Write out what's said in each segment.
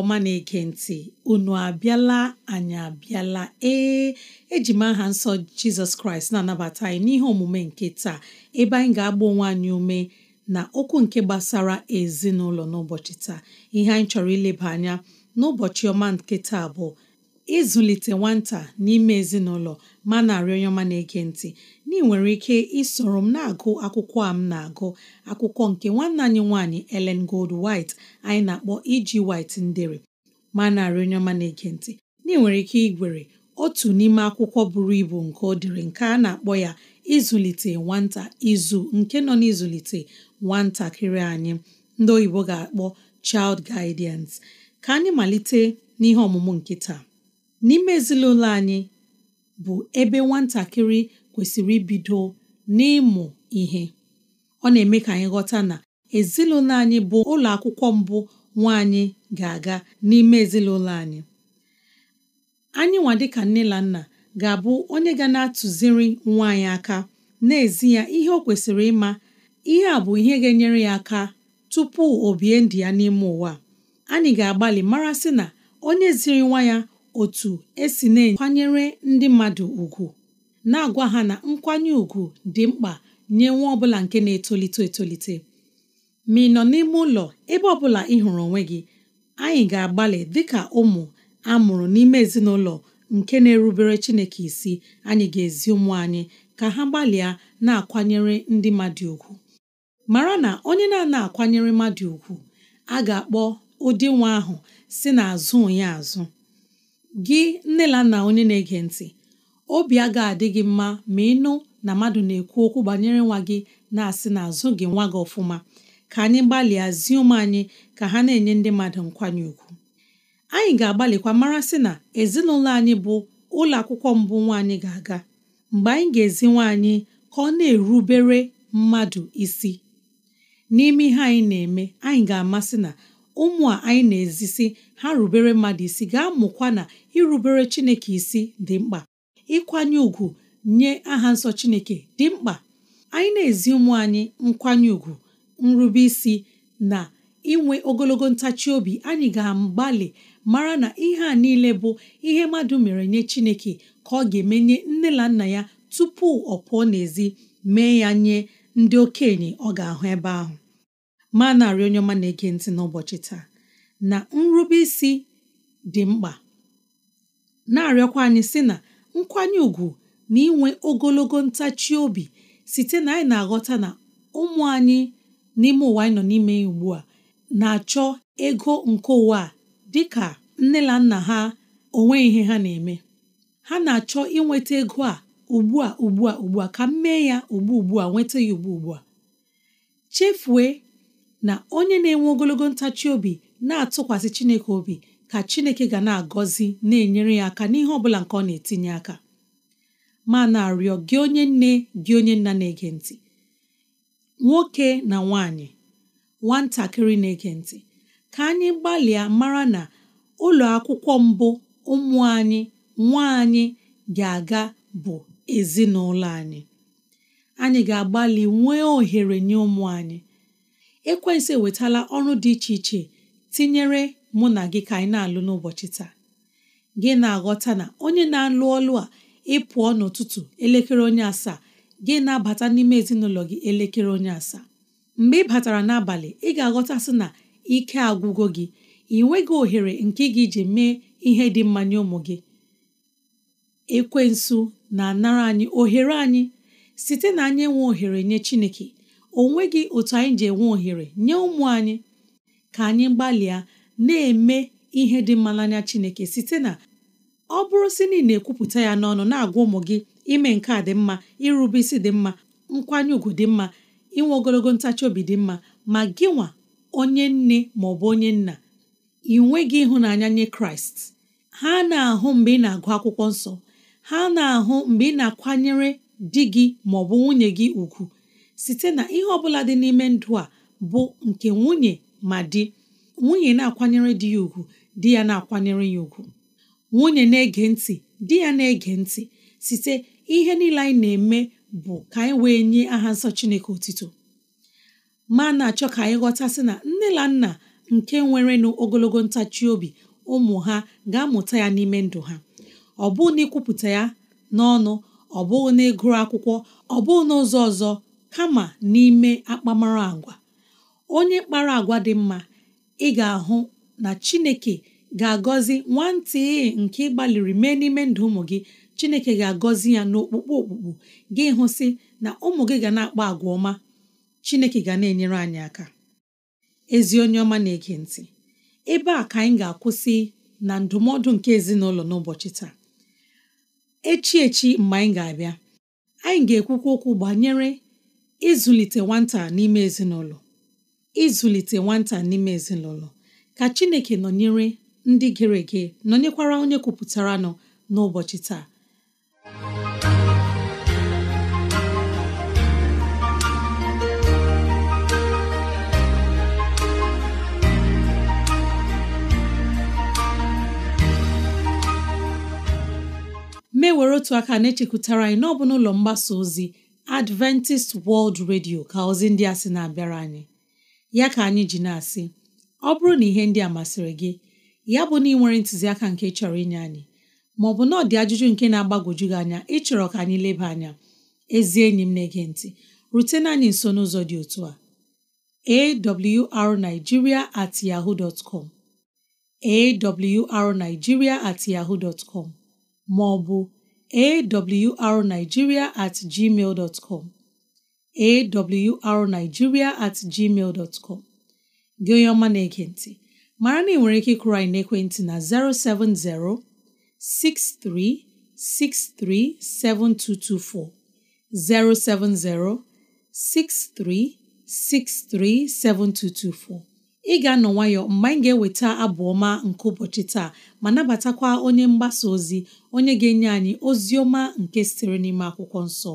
ọma na-ege ntị unu abịala anyị abịala ee eji m aha nsọ jizọs kraịst na-anabata anyị n'ihe omume nke taa ebe anyị ga-agba onwe anyị ume na okwu nke gbasara ezinụlọ n'ụbọchị taa ihe anyị chọrọ ileba anya n'ụbọchị ọma nke taa bụ ịzụlite nwata n'ime ezinụlọ ma na-arịọ onye ọma na-ege ntị na ị nwere ike isoro m na-agụ akwụkwọ a m na-agụ akwụkwọ nke nwanne anyị nwaanyị elen Gold White anyị na-akpọ iji e White ndere ma narị onye ọma na-ege ntị na ị nwere ike igwere otu n'ime akwụkwọ buru ibu nke ọ dịrị nke a na-akpọ ya ịzụlite nwata izu nke nọ n'ịzụlite nwatakịrị anyị ndị oyibo ga-akpọ child guidance ka anyị malite n'ihe ọmụmụ nkịta n'ime ezinụlọ anyị bụ ebe nwatakịrị kwesịrị ibido n'ịmụ ihe ọ na-eme ka anyị ghọta na ezinụlọ anyị bụ ụlọ akwụkwọ mbụ nwaanyị ga-aga n'ime ezinụlọ anyị anyị nwa dịka nne na nna ga-abụ onye ga na-atụziri nwa anyị aka n'ezi ya ihe o kwesịrị ịma ihe a bụ ihe ga-enyere ya aka tupu o bie ndụ ya n'ime ụwa anyị ga-agbalị mara sị na onye ziri nwa ya otu esi na-ekwanyere ndị mmadụ ugwu na-agwa ha na nkwanye ùgwù dị mkpa nye nwa bụla nke na-etolite etolite ma ị nọ n'ime ụlọ ebe ọbụla ị hụrụ onwe gị anyị ga-agbalị dịka ụmụ a mụrụ n'ime ezinụlọ nke na-erubere Chineke isi anyị ga-ezi ụmụ anyị ka ha gbalịa na-akwanyere ndị mmadụ ùgwù mara na onye na-ana akwanyere mmadụ ùgwù a ga-akpọ ụdị nwa ahụ si na onye azụ gị nne na onye na-ege ntị obi ga adị gị mma ma ịnụ na mmadụ na-ekwu okwu banyere nwa gị na-asị na azụ gị nwa gị ọfụma ka anyị gbalịa zie ụmụ anyị ka ha na-enye ndị mmadụ nkwanye ùgwù anyị ga-agbalịkwa mara sị na ezinụlọ anyị bụ ụlọ akwụkwọ mbụ nwa anyị ga-aga mgbe anyị ga-ezi nwa anyị ka ọ na-erubere mmadụ isi n'ime ihe anyị na-eme anyị ga-amasị na ụmụ a anyị na-ezisi ha rubere mmadụ isi ga-amụkwa na irubere Chineke isi dị mkpa ịkwanye ùgwù nye aha nsọ Chineke dị mkpa anyị na-ezi ụmụ anyị nkwanye ùgwù nrube isi na inwe ogologo ntachi obi anyị ga-agbalị mara na ihe a niile bụ ihe mmadụ mere nye Chineke ka ọ ga emenye nye nne na nna ya tupu ọ pụọ n'ezi mee ya nye ndị okenye ọ ga-ahụ ebe ahụ ma narị onye ọma na-ege ntị n'ụbọchị taa na nrube dị mkpa na-arịọkwa anyị sị na nkwanye ùgwù na inwe ogologo ntachi obi site na anyị na-aghọta na ụmụ anyị n'ime ụwa anyị nọ n'ime ugbu a na-achọ ego nke ụwa a ka nne na nna ha onwe ihe ha na-eme ha na-achọ inweta ego a ugbu a ugbu a ugbu a ka m mee ya ugbu ugbu a nweta ya ugbu ugbu a chefue na onye na-enwe ogologo ntachi obi na-atụkwasị Chineke obi ka Chineke ga na-agọzi na-enyere ya aka n'ihe ọbụla nke ọ na-etinye aka ma na-arịọ gị onye nne gị onye nna na-ege ntị nwoke na nwanyị nwatakịrị na-ege ntị ka anyị gbalịa mara na ụlọ akwụkwọ mbụ ụmụ anyị nwa anyị ga-aga bụ ezinụlọ anyị anyị ga-agbalị nwee ohere nye ụmụ anyị ekwensu ewetala ọrụ dị iche iche tinyere mụ na gị ka anyị na-alụ n'ụbọchị taa gị na-aghọta na onye na-alụ ọlụ a ịpụọ n'ụtụtụ elekere onye asaa gị na-abata n'ime ezinụlọ gị elekere onye asaa mgbe ị batara n'abalị ị ga-aghọtasị na ike agwụgo gị ị nweghị ohere nke gị ji mee ihe dị mma nye ụmụ gị ekwensu na-anara anyị ohere anyị site na anyị enwe ohere nye Chineke o nweghị otu anyị ji enwe ohere nye ụmụ anyị ka anyị gbalịa na-eme ihe dị mma n'anya Chineke site na ọ bụrụ si na ị na-ekwupụta ya n'ọnụ na-agwa ụmụ gị ime nke a dị mma irube isi dị mma nkwanye ùgwù dị mma inwe ogologo ntachi obi dị mma ma gị nwa onye nne ma ọ bụ onye nna ị nweghị ịhụnanya nye Kraịst ha na-ahụ mgbe ị na-agụ akwụkwọ nsọ ha na-ahụ mgbe ị na-akwanyere di gị ma ọ bụ nwunye gị ùgwù site na ihe ọ bụla dị n'ime ndụ a bụ nke nwunye ma di nwunye na-akwanyere di ya ugwu di ya na-akwanyere ya ugwu nwunye na-ege ntị di ya na-ege ntị site ihe niile anyị na-eme bụ ka anyị wee nye aha nsọ Chineke otito ma na-achọ ka anyị ghọtasị na nne na nna nke nwere n'ogologo ntachi obi ụmụ ha ga-amụta ya n'ime ndụ ha ọ bụghị na ikwupụta ya n'ọnụ ọ bụghị na ịgụrụ akwụkwọ ọ bụghị n'ụzọ ọzọ kama n'ime akpamara agwa onye kpara agwa dị mma ị ga-ahụ na Chineke ga-agọzi nwantị nke ị gbalịrị mee n'ime ndụ ụmụ gị Chineke ga-agọzi ya n'okpukpu okpukpu gị hụsị na ụmụ gị ga na-akpa agwa ọma Chineke ga na-enyere anyị aka ezi onye ọma na-ege ntị ebe a ka anyị ga-akwụsị na ndụmọdụ nke ezinụlọ n'ụbọchị taa echi echi mgbe anyị ga-abịa anyị ga-ekwukwa okwu banyere ịzụlite nwata n'ime ezinụlọ ịzụlite nwata n'ime ezinụlọ ka Chineke nọnyere ndị gere ege nọnyekwara onye kwupụtara nọ n'ụbọchị taa mewere otu aka na-echekwutara anyị n'ọbụ n'ụlọ mgbasa ozi Adventist World Radio ka ozi ndị a sị na-abịara anyị ya ka anyị ji na-asị ọ bụrụ na ihe ndị a masịrị gị ya bụ na ị nwere ntụziaka nke chọrọ inye anyị maọbụ na ọdị dị ajụjụ nke na-agbagwoju gị anya ịchọrọ ka anyị leba anya ezi enyi m na-ege ntị rutena anyị nso n'ụzọ dị otu a awrnigeria at yahoo dot arigiria at maọbụ arigiria at gmail awrnigeria at gmail dot com gị onye ọma na ekwenti ntị na ị nwere ike ịkụrụ anyị n'ekwentị na 070 6363 7224 070 6363 7224 ị ga-anọ nwayọ mgbe anyị ga-eweta abụ ọma nke ụbọchị taa ma nabatakwa onye mgbasa ozi onye ga-enye anyị ozi ọma nke sitere n'ime akwụkwọ nsọ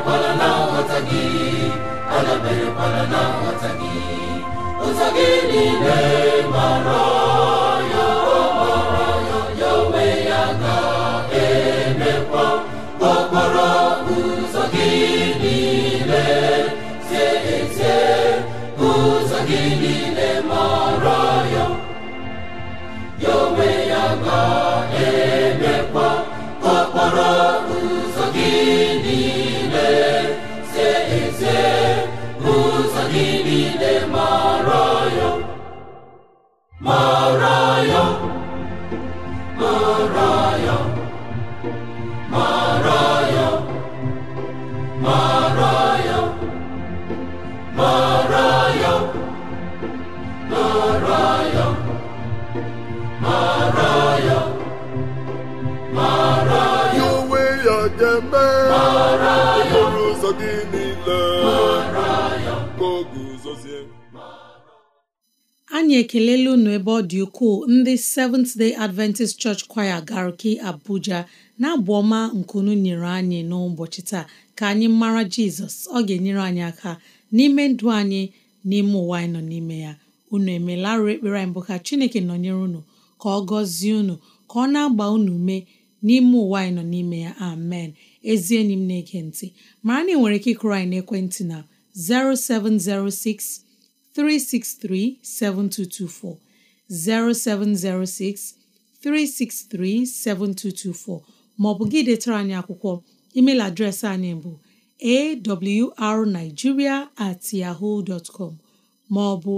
na nghọta gị ụzọ gị niile mara anyị ekelela unu ebe ọ dị ukwuu ndị Seventh Day Adventist Church Choir Garki Abuja na-abụ ọma nke unu nyere anyị n'ụbọchị taa ka anyị mara Jizọs ọ ga-enyere anyị aka n'ime ndụ anyị n'ime ụwa anyị nọ n'ime ya unu emelarụ ekpere anyị bụ ka Chineke nọnyere unu ka ọ gọzie unu ka ọ na-agba unu mee n'ime ụwa anyị nọ n'ime ya amen ezi enyi m na-ege ntị mara na ị nwere ike ịkụrụ anyị n'ekwentị na 0706 363 7224 0706 363 7224 maọbụ gị detara anyị akwụkwọ email adreesị anyị bụ arigiria at yahoo dot com maọbụ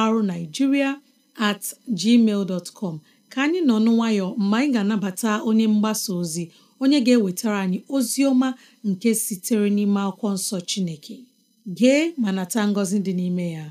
awrnigeria at gmail dot com ka anyị nọ nwayọ mgbe anyị ga-anabata onye mgbasa ozi onye ga-ewetara anyị ozi ọma nke sitere n'ime akwụkwọ nsọ Chineke gee ma nata ngọzi dị n'ime ya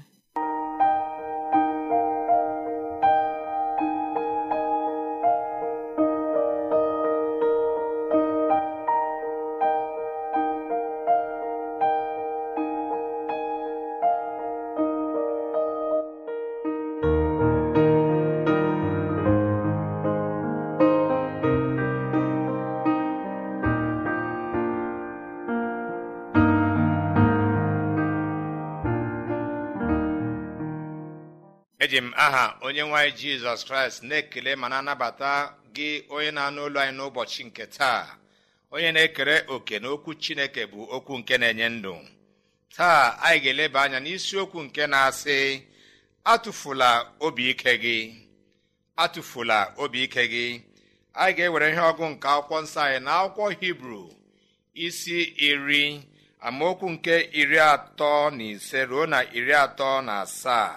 eji m aha onye anyị jizọs kraịst na-ekele ma na-anabata gị onye na-anụ olu anyị n'ụbọchị nke taa onye na-ekere oke na okwu chineke bụ okwu nke na-enye ndụ taa anyị ga-eleba anya n'isiokwu nke na-asị atụfula obi ike gị atụfula obi ike gị anyị ga-ewere ihe ọgụ nke akwụkwọ nsọ anyị na akwụkwọ hibru isi iri amaokwu nke iri atọ na ise ruo na iri atọ na asaa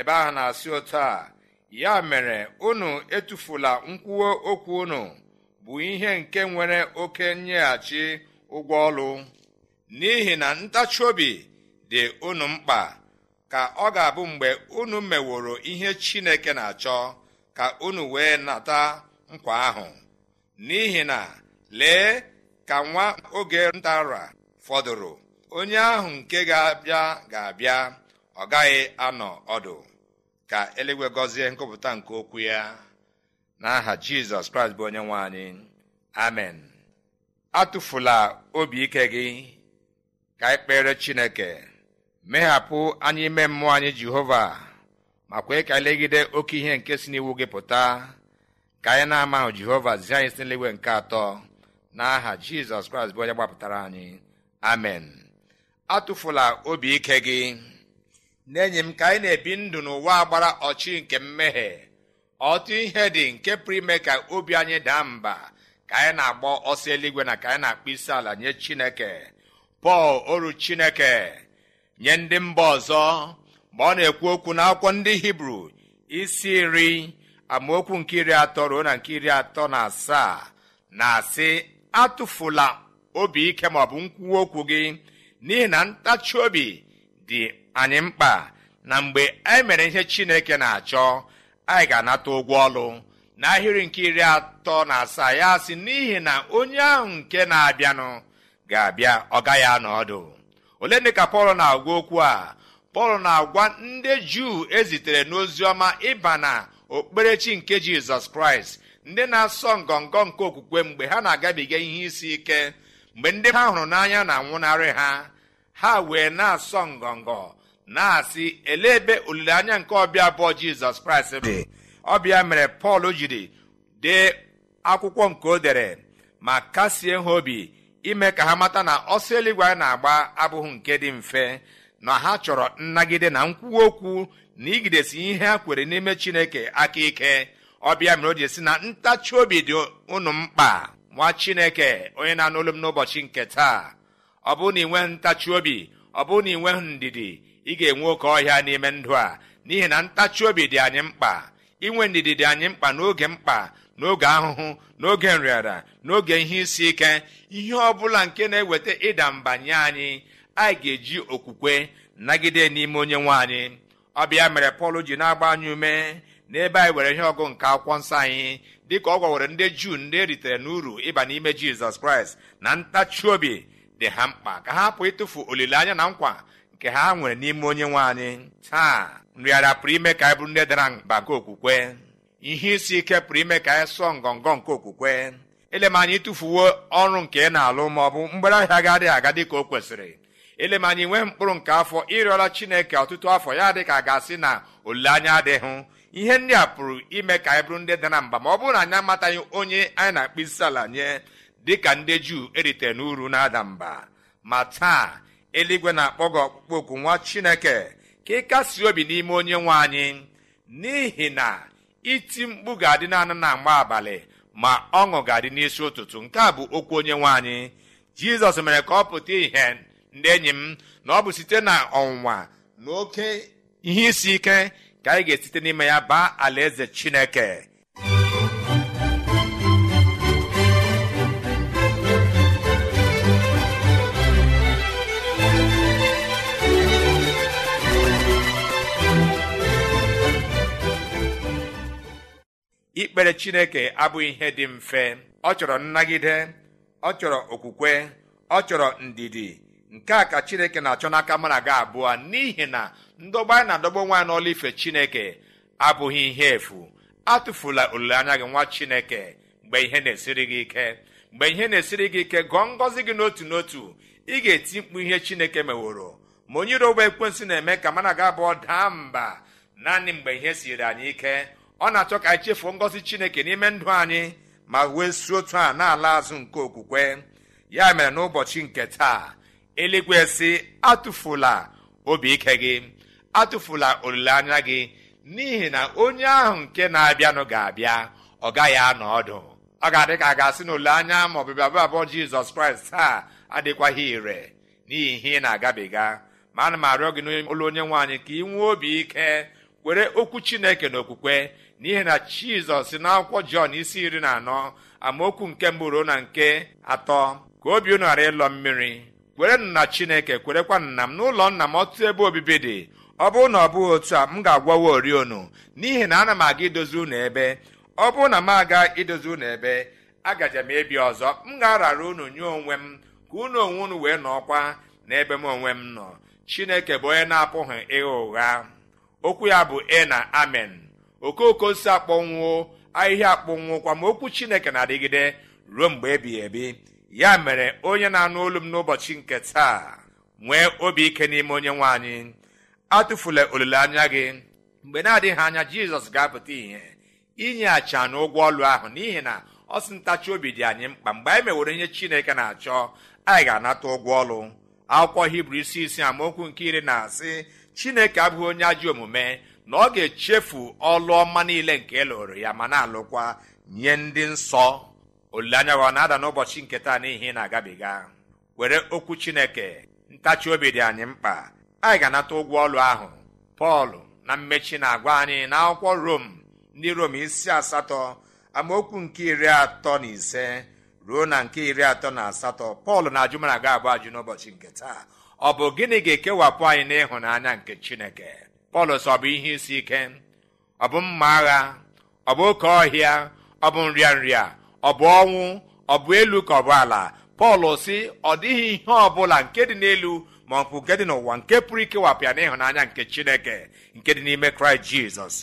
ebe ahụ na-asị ụta a ya mere unu etufula nkwuo okwu unu bụ ihe nke nwere oke nyeghachi ụgwọ ọrụ n'ihi na ntachi obi dị unu mkpa ka ọ ga-abụ mgbe unu meworo ihe chineke na-achọ ka unu wee nata nkwa ahụ n'ihi na lee ka nwa oge ntara fọdụrụ onye ahụ nke ga-abịa ga-abịa ọ gaghị anọ ọdụ ka eluigwe gọzie nkụpụta nke okwu ya n'aha jizọs kraịst bụ onye nwe anyị amen atụfula obi ike gị ka ị kpere chineke meghapụ anyị ime mmụọ anyị jehova ma kwee ka legide oke ihe nke si n'iwu gị pụta ka anyị na-amahụ jehova zie anyị si n'eluigwe nke atọ n'aha jizọs kraịst bụ onye gbapụtara anyị amen atụfula obi ike gị n'enyi m ka anyị na-ebi ndụ n'ụwa gbara ọchị nke mmehie ọtụ ihe dị nke pụrụ ime ka obi anyị daa mba ka anyị na-agba ọsọ eluigwe na ka anyị na-akpọ isi ala nye chineke pọl oru chineke nye ndị mba ọzọ mgbe ọ na-ekwu okwu n'akwụkwọ ndị hibru isi iri amaokwu nke iri atọ ruo na nke iri atọ na asaa na-asị atụfula obi ike maọbụ nkwuwa okwu gị n'ihi na ntachi obi dị anyị mkpa na mgbe anyị e mere ihe chineke na-achọ anyị ga-anata ụgwọ ọlụ n'ahịrị nke iri atọ na asaa ya sị n'ihi na onye ahụ nke na-abịanụ ga-abịa ọ gaghị anọ ọdụ ole ndị ka pọl na-agwa okwu a pọl na-agwa ndị juu ezitere n'ozi ọma ịba na okpukperechi nke jizọs kraịst ndị na-asọ ngọngọ nke okwukwe mgbe ha na-agabiga ihe isi ike mgbe ndị ha hụrụ n'anya na-anwụnarị ha ha wee na-asọ ngọngọ na-asị elee ebe olileanya nke ọbịa abụọ jizọs kraịst dị ọbịa mere pọl jiri dee akwụkwọ nke o dere ma kasie ha obi ime ka ha mata na ọsọ eluigwe anyị na-agba abụghị nke dị mfe na ha chọrọ nnagide na nkwuwa okwu na igidesi ihe ha kwere n'ime chineke aka ike ọbịa mere o ji esi na ntachi obi dị ụnụ mkpa nwa chineke onye na-anụ m n'ụbọchị nke taa ọ bụrụ na ị nweghị ntachi obi ọ bụrụ na ị nweghị ndidi ị ga-enwe oke ọhịa n'ime ndụ a n'ihi na ntachi obi dị anyị mkpa inwe ndidi dị anyị mkpa n'oge mkpa n'oge ahụhụ n'oge nrịara n'oge ihe isi ike ihe ọ bụla nke na-eweta ịda mba nye anyị anyị ga-eji okwukwe nagide n'ime onye nwe anyị ọbịa mere pọl ji na-agba anyị ume n'ebe anyị were ihe ọgụ nke akwụkwọ nsọ anyị dịka ọ gwawere ndị juu ndị eritere n'uru ịba n'ime jizọs kraịst na ntachi obi dị ha mkpa ka ha hapụ ịtụfu olileanya na nkwa nke ha nwere n'ime onye nwe anyị taa nrịara pụrụ ime ka anyị bụrụ ndị dara mba nke okwukwe ihe isi ike pụrụ ime ka anyị sụọ ngọngọ nke okwukwe m anyị tụfuwo ọrụ nke ị na-alụ ma ọ bụ mgbere ahịa adịghị aga dịka o kwesịrị m anyị nwee mkpụrụ nke afọ ịrịọla chineke ọtụtụ afọ ya dị ka a ga-asị na olileanya adịghị ihe ndị a pụrụ ime ka anyị bụrụ ndị dara mba ma ọ bụrụ na anyị amataghị onye anyị na-akpụ isi ala nye dịka ndị juu eritere n'uru na-ada mba ma taa eluigwe na-akpọ gị ọkpụkpọ nwa chineke ka ị kasị obi n'ime onye nwe anyị n'ihi na iti mkpu ga-adị naanị na mgba abalị ma ọṅụ ga-adị n'isi ụtụtụ nke a bụ okwu onye nwe anyị jizọs mere ka ọ pụta ihe ndị enyi m na ọ bụ site na ọnwụnwa na oke ihe isi ike ka anyị ga-esite n'ime ya baa alaeze chineke ikpere chineke abụghị ihe dị mfe ọ chọrọ nnagide ọ chọrọ okwukwe ọ chọrọ ndidi nke a ka chineke na-achọ n'aka mana gị abụọ n'ihi na ndọgba anyị na-adọgba nwa n'ọla ife chineke abụghị ihe efu atụfula olileanya gị nwa chineke mgbe ihe na-esiri gị ike mgbe ihe na-esiri gị ike gụọ ngọzi gị n'otu n'otu ị ga-eti mkpu ihe chineke meworo ma onye iro ụgbọ ekwensị na-eme ka mana gị abụọ daa mba naanị mgbe ihe siri anyị ike ọ na-achọ ka anyị chefuo ngọzi chineke n'ime ndụ anyị ma wee si otu a na-ala azụ nke okwukwe ya mere n'ụbọchị nke taa eluigwe si atụfula obi ike gị atụfula olileanya gị n'ihi na onye ahụ nke na-abịanụ ga-abịa ọ gaghị anọ ọdụ ọ ga-adị ka a ga-asị na olileanya ma ọbịbịa abụọ jizọs kraịst taa adịkwaghị ire n'ihi ihe ị na-agabiga ma ana m arịọ gị n'ụlọ onye nwaanyị ka ị nwee obi ike were okwu chineke na okwukwe n'ihi na jizọs na akwụkwọ jọn isi iri na anọ amaokwu nke mbụrụ ruo na nke atọ ka obi unu ghara ịlọ mmiri kwerenụ na chineke kwerekwa na m n'ụlọ nna m ọtụtụ ebe obibi dị ọ bụrụ na ọ bụghị otu a m ga-agwawa orionu n'ihi na ana m aga idozi unu ebe ọ bụrụ na m aga idozi unu ebe agaje m ebi ọzọ m ga-arara unu nye onwe m ka unu onwe unu wee nọọkwa n'ebe m onwe m nọ chineke bụ onye na-apụghị ịgha ụgha okwu ya bụ e na amen okooko si akpọnwụ ahịhịa akpọnwụkwa ma okwu chineke na-adịgide ruo mgbe ebighi ebi ya mere onye na-anụ olu m n'ụbọchị nke taa nwee obi ike n'ime onye nwe anyị atụfula olileanya gị mgbe na-adịghị anya jizọs ga-apụta inye acha na ụgwọ ọlụ ahụ n'ihi na ọ ntachi obi dị anyị mkpa mgbe anyị mewere ihe chineke na-achọ anyị ga-anata ụgwọ ọlụ akwụkwọ hibru isi isi amaokwu nke iri na-asị chineke abụghị onye ajọ omume na ọ ga-echefu ọlụ ọma niile nke elụrụ ya ma na-alụkwa nye ndị nsọ olileanya ọ na-ada n'ụbọchị nke taa n'ihi na-agabiga were okwu chineke ntachi obi dị anyị mkpa anyị ga-anata ụgwọ ọlụ ahụ pọl na mmechi na-agwa anyị na akwụkwọ rom ndị rom isi asatọ amaokwu nke iri atọ na ise ruo na nke iri atọ na asatọ pọl na ajụmana ga abụ ajụ n'ụbọchị nke taa ọ bụ gịnị ga-ekewapụ anyị n'ịhụnanya nke chineke pọlọs ọ bụ ihe isi ike ọ bụ mma agha ọ bụ oke ọhịa ọ bụ nrịanrịa ọ bụ ọnwụ ọ bụ elu ka ọ bụ ala pọl si ọ dịghị ihe ọ bụla nke dị n'elu ma ọ bụ nke dị n'ụwa nke pụrụ ikewapịa n'ịhụnanya nke chineke nke dị n'ime kraịst jizọs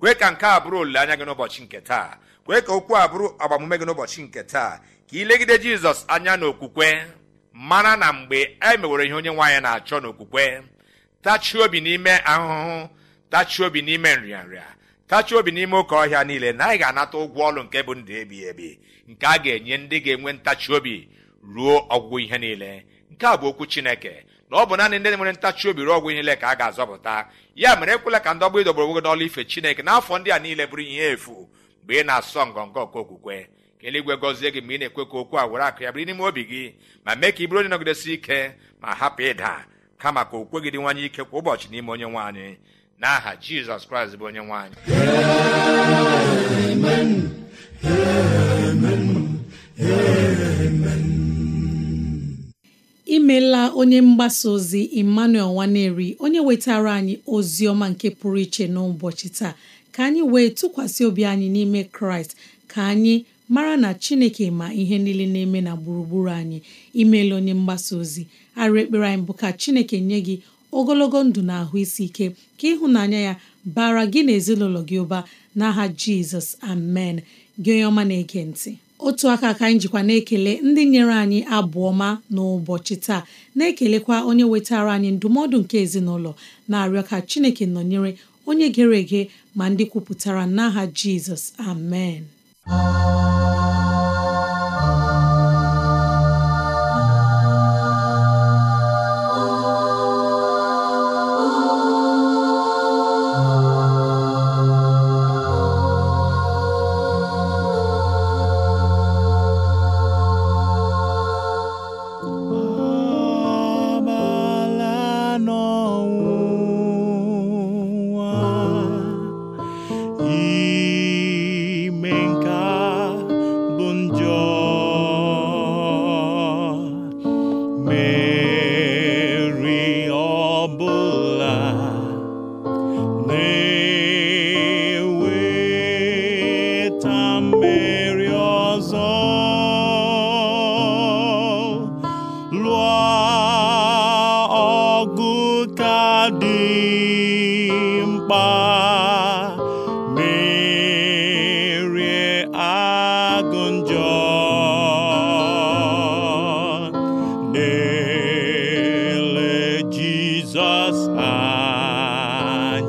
kwe ka nke a bụrụ olileanya gị n'ụbọchị nke taa kwee ka okwu a bụrụ agbamume gị n'ụbọchị nke taa ka ilegide jizọs anya n'okwukwe mara na mgbe e mewere ihe onye nwaanyị na-achọ n'okwukwe tachie obi n'ime ahụhụ tachie obi n'ime nrịanrịa tachie obi n'ime ụka ọhịa niile na anyị ga-anata ụgwọ ọrụ nke bụ ndụ ebighị ebi nke a ga-enye ndị ga-enwe ntachi obi ruo ọgwụgwụ ihe niile nke a bụ okwu chineke na ọ bụ naanị ndị nwere ntachi obi ruo ọgwụ ihe niile ka a ga-azọpụta ya mere ekwela ka ndọgba ịdọgburu onwe gị n'ọlụ ife chineke n'afọ ndị a niile bụrụ ihe efu mgbe ị na-asọ ngọngọ nke okwukwe ka eluigwe gọzie gị mgbe ị na-ekwe ka okwu a were akụ ya bụrụ n'ime obi gị ma mee ka ị bụrụ onye nọgidesi ike ma hapụ ịda kama ka o kwegirinwanye ike kwa ụbọchị n'ime onye nwe n'aha jizọs kraịst bụ onye nwanyị. imeela onye mgbasa ozi emmanuel nwaneri onye wetara anyị ozi ọma nke pụrụ iche n'ụbọchị taa ka anyị wee tụkwasị obi anyị n'ime kraịst ka anyị mara na chineke ma ihe niile na-eme na gburugburu anyị imeela onye mgbasa ozi arụ ekpere anyị bụ ka chineke nye gị ogologo ndụ na ahụ isi ike ka ịhụnanya ya bara gị na ezinụlọ gị ụba n'aha jizọs amen gị onye ọma na-ege ntị otu aka ka anyị jikwa na-ekele ndị nyere anyị abụọ ma n'ụbọchị taa na-ekelekwa onye wetara anyị ndụmọdụ nke ezinụlọ na-arịọ ka chineke nọnyere onye gere ege ma ndị kwupụtara n'aha jizọs amen Música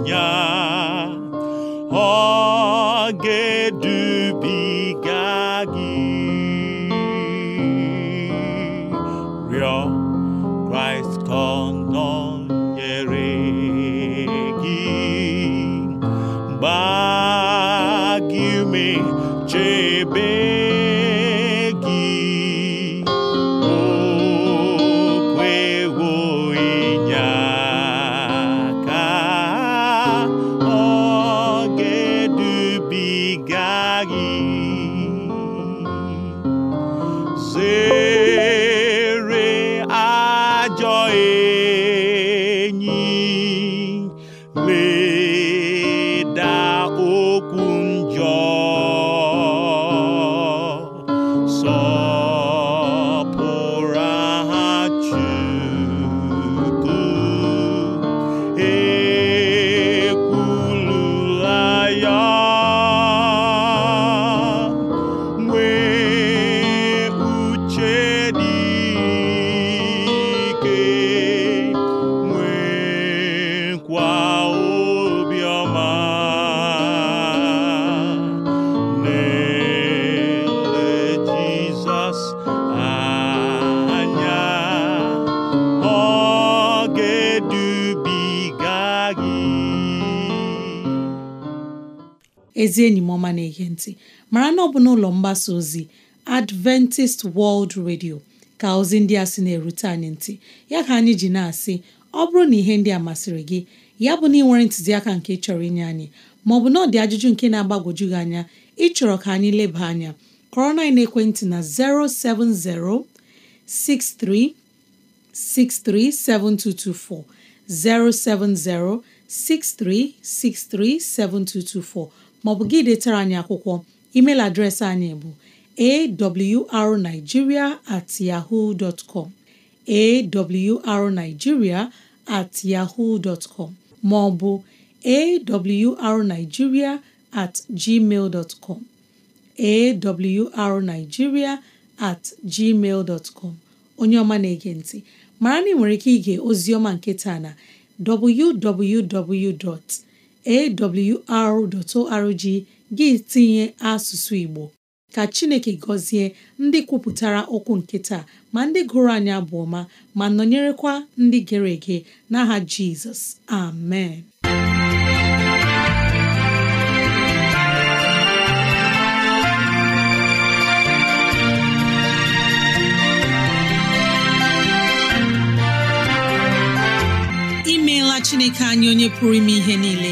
anya ọ ga ezi enyi m ọma na-ege ntị mara na ọ bụ n'ụlọ mgbasa ozi Adventist World Radio ka ozi ndị a sị na-erute anyị ntị ya ka anyị ji na-asị ọ bụrụ na ihe ndị a masịrị gị ya bụ na ị nwere ntụziaka nke chọrọ inye anyị maọbụ na ọ ajụjụ nke na-agbagwoju gị anya ịchọrọ ka anyị leba anya kọrọ na ekwentị na 070 63 maọbụ gị detara anyị akwụkwọ email adreesị anyị bụ awrnigeria at yahoo dot com at maọbụ awrnigeria at com at gmail onye ọma na-ege ntị mara na ị nwere ike ige ozi ọma nke taa na www. awr.org gị tinye asụsụ Igbo ka Chineke gọzie ndị kwupụtara okwu nke taa ma ndị gụrụ anya abụ ọma ma nọnyerekwa ndị gere ege n'aha Jizọs amen imeela Chineke anya onye pụrụ ime ihe niile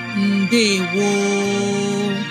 woo!